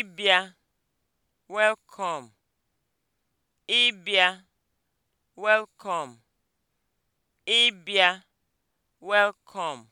ịbịa (welcome), ịbịa (welcome), ịbịa (welcome).